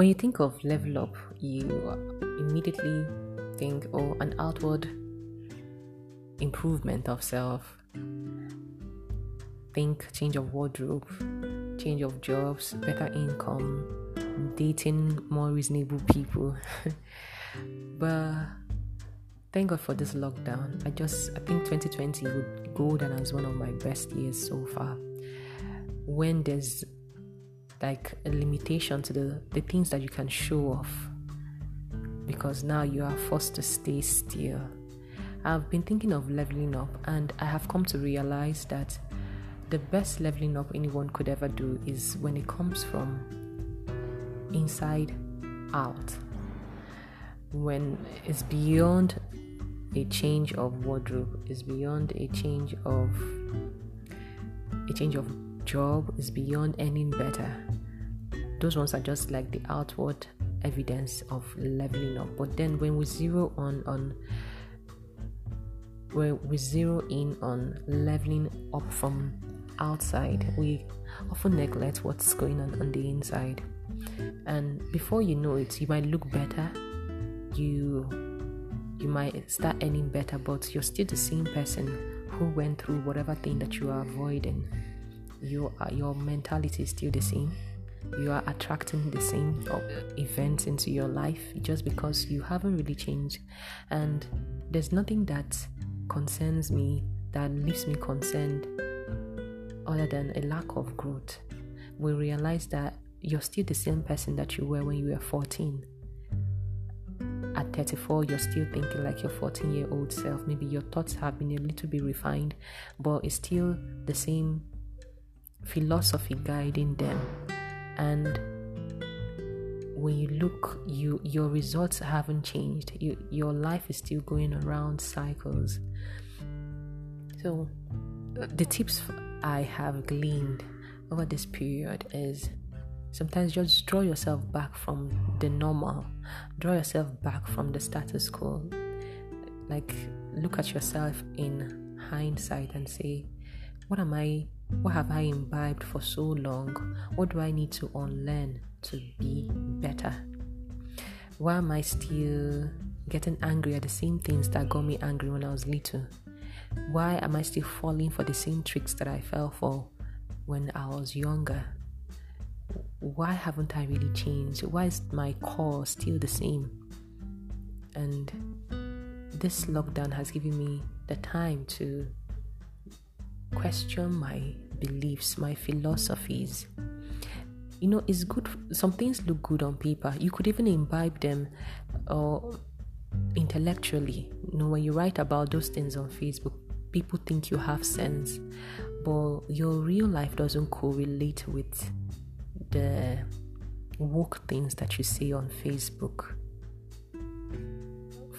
When you think of level up, you immediately think, oh, an outward improvement of self. Think change of wardrobe, change of jobs, better income, dating more reasonable people. but thank God for this lockdown. I just I think 2020 would go down as one of my best years so far. When there's like a limitation to the, the things that you can show off because now you are forced to stay still. I've been thinking of leveling up and I have come to realize that the best leveling up anyone could ever do is when it comes from inside out. When it's beyond a change of wardrobe, it's beyond a change of a change of job, it's beyond earning better. Those ones are just like the outward evidence of leveling up. But then when we zero on on when we zero in on leveling up from outside, we often neglect what's going on on the inside. And before you know it, you might look better. You you might start earning better, but you're still the same person who went through whatever thing that you are avoiding. Your your mentality is still the same you are attracting the same events into your life just because you haven't really changed. And there's nothing that concerns me that leaves me concerned other than a lack of growth. We realize that you're still the same person that you were when you were 14. At 34, you're still thinking like your 14 year old self. Maybe your thoughts have been a little bit refined, but it's still the same philosophy guiding them and when you look you your results haven't changed you, your life is still going around cycles so the tips i have gleaned over this period is sometimes just draw yourself back from the normal draw yourself back from the status quo like look at yourself in hindsight and say what am i What have I imbibed for so long? What do I need to unlearn to be better? Why am I still getting angry at the same things that got me angry when I was little? Why am I still falling for the same tricks that I fell for when I was younger? Why haven't I really changed? Why is my core still the same? And this lockdown has given me the time to question my beliefs, my philosophies. You know, it's good. Some things look good on paper. You could even imbibe them or uh, intellectually. You know, when you write about those things on Facebook, people think you have sense, but your real life doesn't correlate with the woke things that you see on Facebook.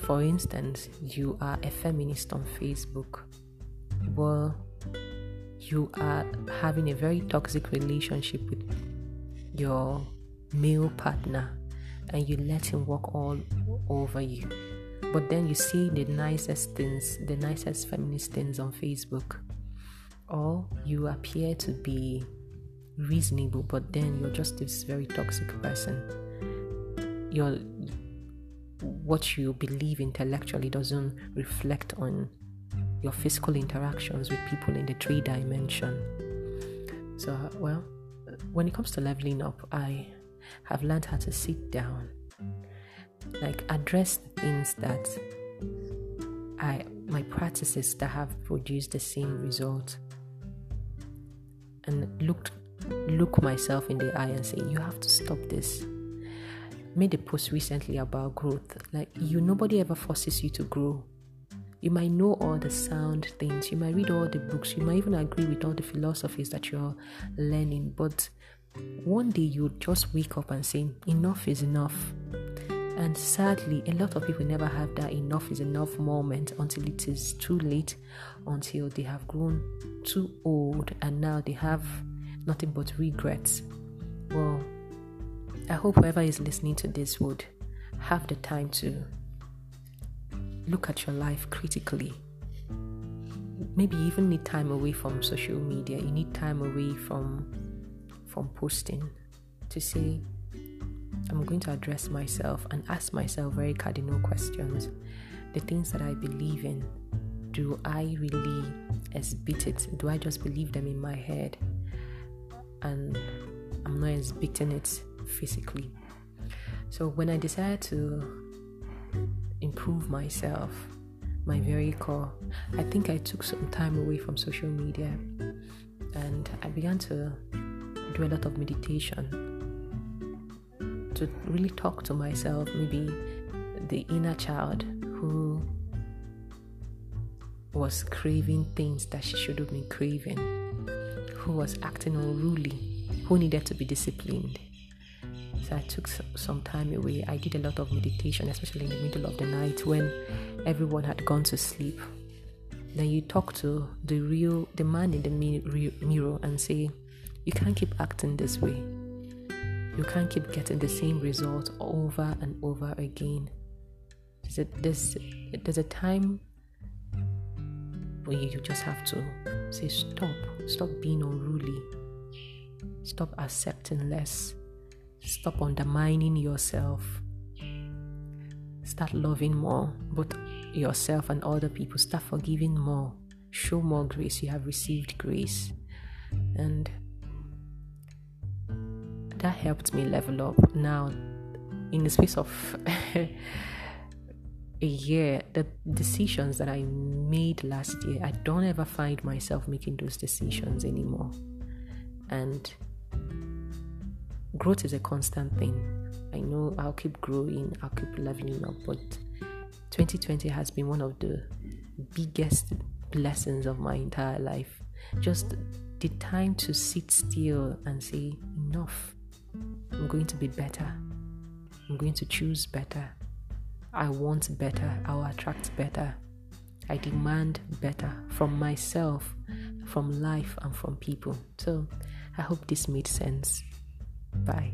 For instance, you are a feminist on Facebook. Well, you are having a very toxic relationship with your male partner and you let him walk all over you. But then you see the nicest things, the nicest feminist things on Facebook. Or you appear to be reasonable, but then you're just this very toxic person. Your what you believe intellectually doesn't reflect on your physical interactions with people in the three dimension. So, well, when it comes to leveling up, I have learned how to sit down, like address the things that I my practices that have produced the same result, and looked look myself in the eye and say, "You have to stop this." Made a post recently about growth. Like you, nobody ever forces you to grow You might know all the sound things, you might read all the books, you might even agree with all the philosophies that you're learning, but one day you just wake up and say, Enough is enough. And sadly, a lot of people never have that enough is enough moment until it is too late, until they have grown too old and now they have nothing but regrets. Well, I hope whoever is listening to this would have the time to look at your life critically. Maybe you even need time away from social media. You need time away from from posting to say, I'm going to address myself and ask myself very cardinal questions. The things that I believe in, do I really exhibit it? Do I just believe them in my head? And I'm not exhibiting it physically. So when I decided to improve myself, my very core. I think I took some time away from social media and I began to do a lot of meditation to really talk to myself, maybe the inner child who was craving things that she should have been craving, who was acting unruly, who needed to be disciplined. So I took some time away. I did a lot of meditation, especially in the middle of the night when everyone had gone to sleep. Then you talk to the real, the man in the mirror and say, You can't keep acting this way. You can't keep getting the same result over and over again. There's a, there's, there's a time where you just have to say, Stop. Stop being unruly. Stop accepting less Stop undermining yourself. Start loving more, both yourself and other people. Start forgiving more. Show more grace. You have received grace. And that helped me level up. Now, in the space of a year, the decisions that I made last year, I don't ever find myself making those decisions anymore. And growth is a constant thing. I know I'll keep growing, I'll keep leveling up, but 2020 has been one of the biggest blessings of my entire life. Just the time to sit still and say, Enough. I'm going to be better. I'm going to choose better. I want better. I will attract better. I demand better from myself, from life, and from people. So I hope this made sense. Bye.